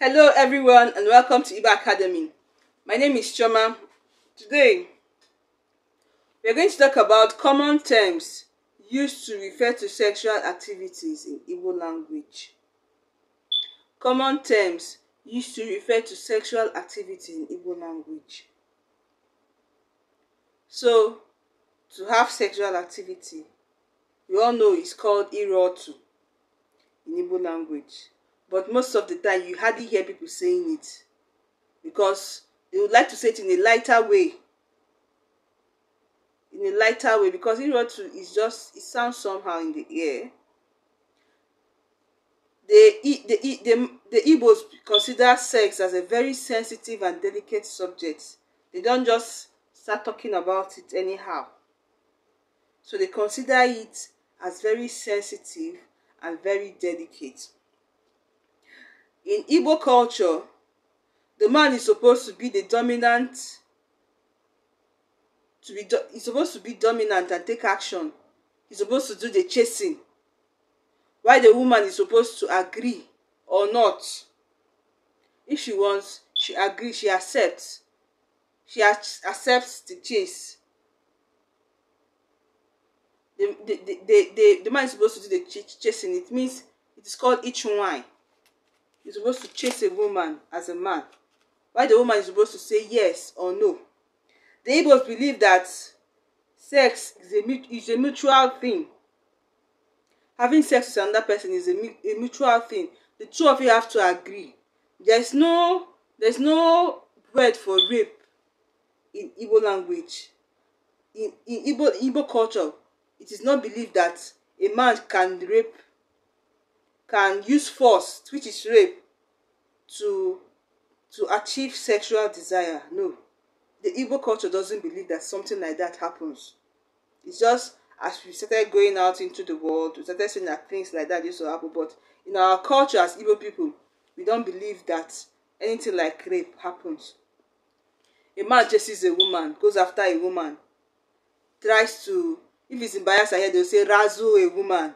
Hello everyone and welcome to IBA Academy. My name is Choma. Today, we are going to talk about common terms used to refer to sexual activities in Igbo language. Common terms used to refer to sexual activity in Igbo language. So, to have sexual activity, we all know it's called irotu in Igbo language. But most of the time, you hardly hear people saying it because they would like to say it in a lighter way. In a lighter way, because it just, it sounds somehow in the air. The, the, the, the, the Igbos consider sex as a very sensitive and delicate subject. They don't just start talking about it anyhow. So they consider it as very sensitive and very delicate. In Igbo culture, the man is supposed to be the dominant to be do, he's supposed to be dominant and take action. He's supposed to do the chasing. Why the woman is supposed to agree or not. If she wants, she agrees, she accepts. She accepts the chase. The, the, the, the, the, the man is supposed to do the ch chasing. It means it is called each wine. is supposed to chase a woman as a man, Why the woman is supposed to say yes or no. The Igbos believe that sex is a, is a mutual thing. Having sex with another person is a, a mutual thing. The two of you have to agree. There's no there's no word for rape in Igbo language. In, in Igbo, Igbo culture, it is not believed that a man can rape can use force, which is rape, to to achieve sexual desire. No. The Igbo culture doesn't believe that something like that happens. It's just as we started going out into the world, we started seeing that things like that used to happen. But in our culture as Igbo people, we don't believe that anything like rape happens. A man just sees a woman, goes after a woman, tries to, if he's in Bayelsa here, they'll say razzle a woman,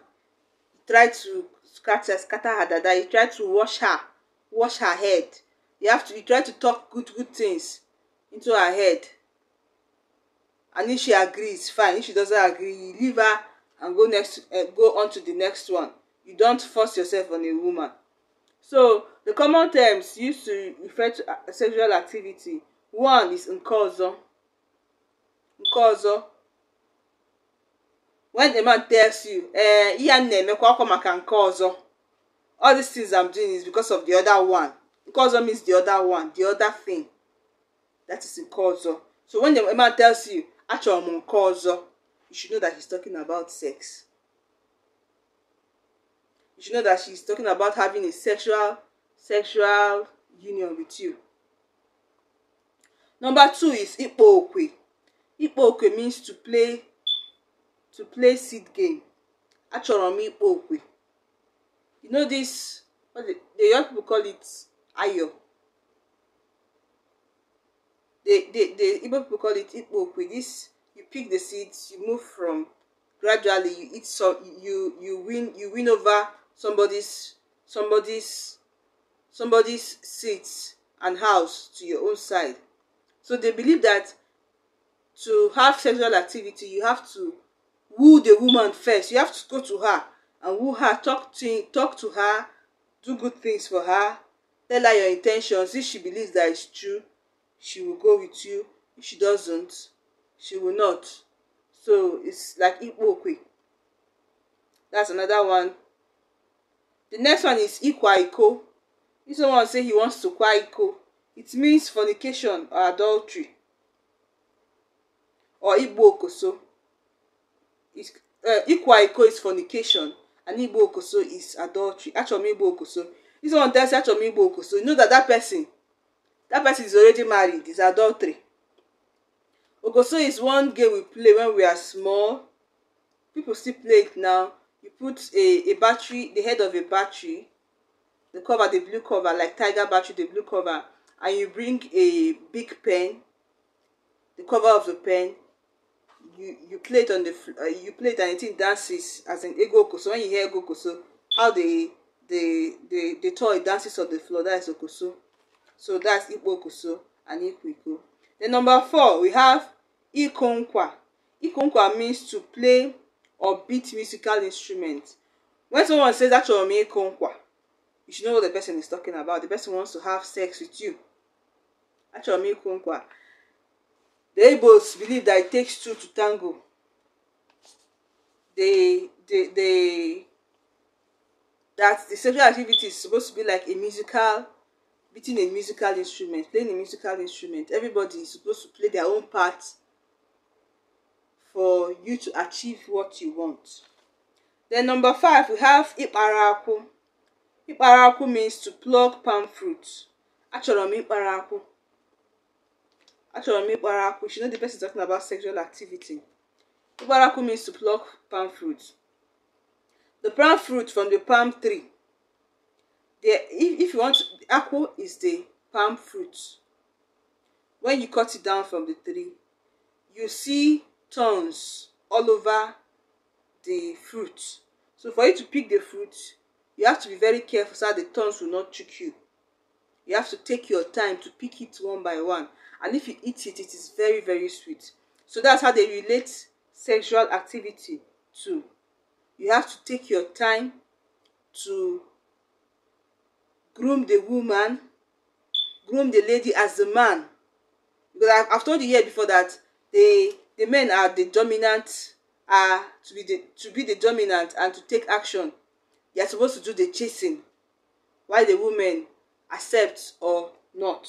try to scratches scatter her dada you try to wash her wash her head you have to you try to talk good good things into her head and if she agrees fine if she doesn't agree you leave her and go next uh, go on to the next one you don't force yourself on a woman so the common terms used to refer to uh, sexual activity one is nke ọzọ when a man tells you eh ihe a na-emekwa ọkwa maka nke ọzọ all these things i'm doing is because of the other one nke means the other one the other thing that is nke ọzọ so when a man tells you achọrọ m nke ọzọ you should know that he's talking about sex you should know that she's talking about having a sexual sexual union with you number two is ikpo okwe ikpo okwe means to play to play seed game achọrọ m okwe you know this what the, the young people call it ayo the the the people call it ikpo okwe this you pick the seeds you move from gradually you eat so you you win you win over somebody's somebody's somebody's seats and house to your own side so they believe that to have sexual activity you have to woo the woman first you have to go to her and woo her talk to talk to her do good things for her tell her your intentions if she believes that it's true she will go with you if she doesn't she will not so it's like ikpokwe that's another one the next one is ikwaiko. iko if someone say he wants to kwaiko. it means fornication or adultery or igbo okoso ịkwa eh, iko is fornication and igbo okoso is adultery achọrọ m igbo okoso this one tell say achọrọ m igbo okoso you know that that person that person is already married is adultery okoso is one game we play when we are small people still play it now you put a a battery the head of a battery the cover the blue cover like tiger battery the blue cover and you bring a big pen the cover of the pen you you play it on the uh, you play it and it dances as an ego So when you hear ego so how the the the the toy dances on the floor that is okoso so that's ikpo okoso and ikwiko then number four we have ikonkwa ikonkwa means to play or beat musical instrument when someone says achọrọ m ikonkwa you should know what the person is talking about the person wants to have sex with you achọrọ m ikonkwa The both believe that it takes two to tango. They, they, they, that the sexual activity is supposed to be like a musical, beating a musical instrument, playing a musical instrument. Everybody is supposed to play their own part for you to achieve what you want. Then number five, we have Iparaku. Iparaku means to pluck palm fruit. Actually, i mean iparaku. Achọrọ m ịkpara akpụ. She know the person talking about sexual activity. Ịkpara akpụ means to pluck palm fruit. The palm fruit from the palm tree. The, if, if you want, akpụ is the palm fruit. When you cut it down from the tree, you see thorns all over the fruit. So for you to pick the fruit, you have to be very careful so that the thorns will not choke you. You have to take your time to pick it one by one. and if you eat it it is very very sweet so that's how they relate sexual activity to you have to take your time to groom the woman groom the lady as the man because I've, told you here before that the the men are the dominant are uh, to be the to be the dominant and to take action You are supposed to do the chasing while the women accept or not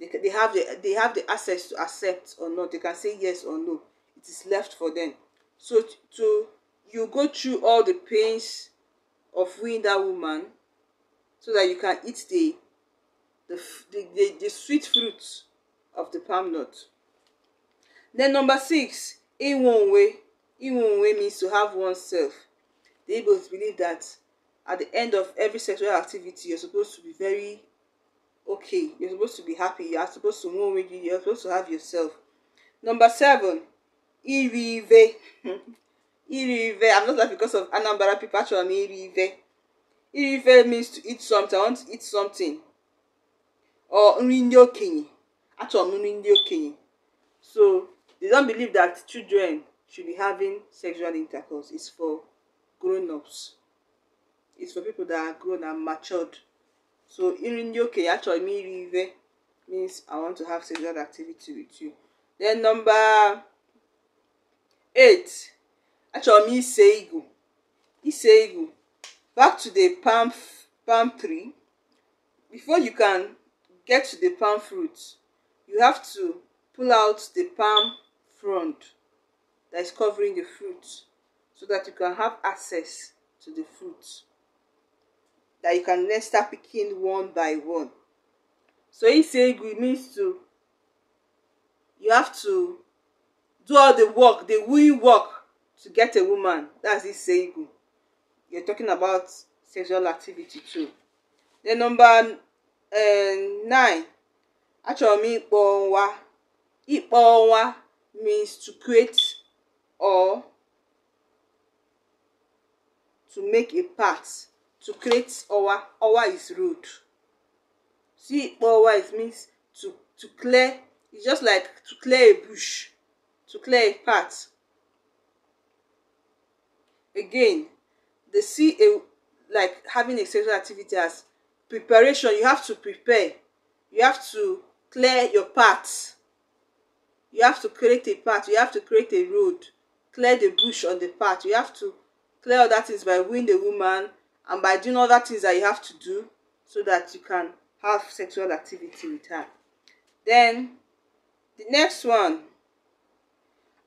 they, they have the they have the access to accept or not they can say yes or no it is left for them so to you go through all the pains of winning that woman so that you can eat the the, the, the, the sweet fruit of the palm nut then number six in one way in one way means to have oneself They both believe that at the end of every sexual activity you're supposed to be very okay you're supposed to be happy you're supposed to move with you you're supposed to have yourself number seven irive irive i'm not that because of anambara people actually i'm irive irive means to eat something i want to eat something or nri ndị okenye achọrọ m nri ndị okenye so they don't believe that children should be having sexual intercourse it's for grown-ups it's for people that are grown and matured so in ndị okenye achọrọ m means i want to have sexual activity with you then number eight actually me ise igu back to the palm palm tree before you can get to the palm fruit you have to pull out the palm frond that is covering the fruit so that you can have access to the fruit. that you can then start picking one by one. So isegwu means to you have to do all the work, the will work to get a woman. That's isegwu. You're talking about sexual activity too. Then number uh, nine, Actually, m ịkpọ ọnwa. means to create or to make a path to create our our is road. See, our is means to, to clear. It's just like to clear a bush, to clear a path. Again, they see a like having a sexual activity as preparation. You have to prepare. You have to clear your path. You have to create a path. You have to create a road. Clear the bush on the path. You have to clear other things by wooing the woman, and by doing other things that you have to do so that you can have sexual activity with her. Then the next one,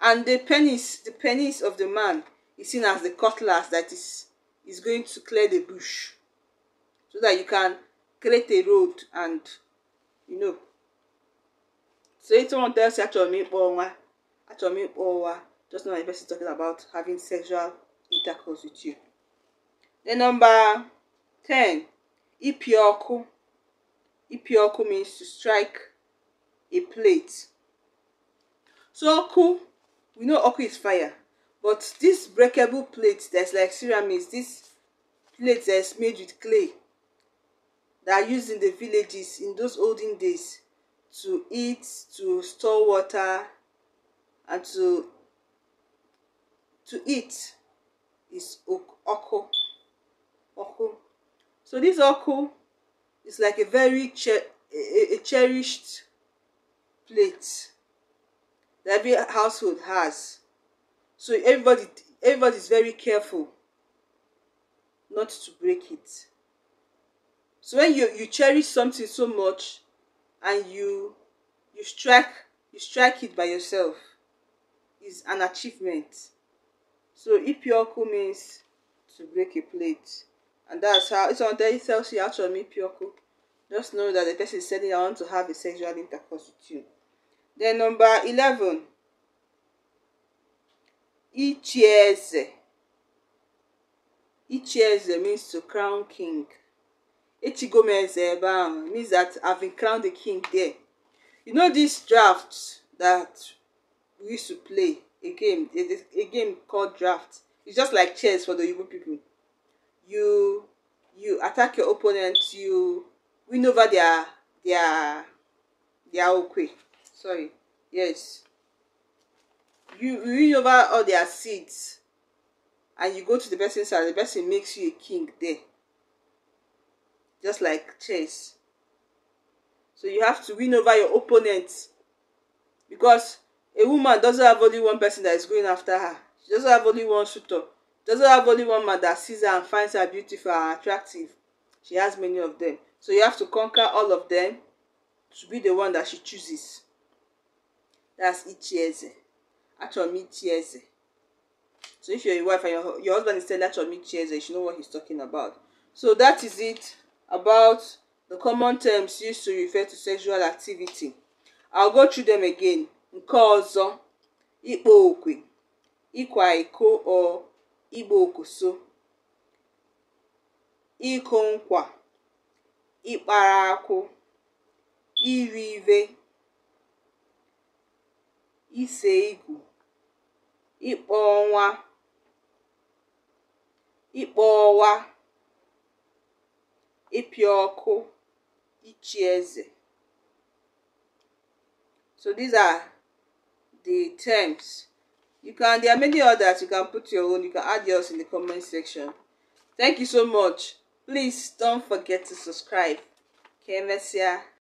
and the penis, the penis of the man is seen as the cutlass that is is going to clear the bush, so that you can create a road and you know. So it's someone tells actually me me just know the person talking about having sexual intercourse with you. Then number 10, Ipioku. Ipioku means to strike a plate. So oku, we know oku is fire. But this breakable plate that's like ceramics, this plate that's made with clay that are used in the villages in those olden days to eat, to store water, and to to eat is oku oku. So this oku is like a very cher a, a cherished plate that every household has. So everybody everybody is very careful not to break it. So when you, you cherish something so much and you you strike you strike it by yourself is an achievement. So ipioku means to break a plate and that's how it's on there it tells you actually to meet Pyoko. Just know that the person is saying I want to have a sexual intercourse with you. Then number 11. Ichieze. Ichieze means to crown king. Ichigomeze means that I've been crowned the king there. You know this draft that we used to play, a game, a, a game called draft. It's just like chess for the Yoruba people you you attack your opponent you win over their their their okay. sorry yes you, win over all their seeds and you go to the person's house the person makes you a king there just like chess so you have to win over your opponent because a woman doesn't have only one person that is going after her she doesn't have only one suitor doesn't have only one man that sees her and finds her beautiful and attractive. She has many of them. So you have to conquer all of them to be the one that she chooses. That's Ichieze. Achomi Ichieze. So if you're a wife and your, your husband is telling Achomi Ichieze, you should know what he's talking about. So that is it about the common terms used to refer to sexual activity. I'll go through them again. Nke ọzọ, ịkpọ okwe, ịkwa iko or ịgba okoso ịkụ nkwa ịkpara akwụ iri ive ise igù ịkpọ ọnwa ịkpọ ọwa ịpịa ọkụ ichi eze so these are the terms you can there are many others you can put your own you can add yours in the comment section thank you so much please don't forget to subscribe kemesia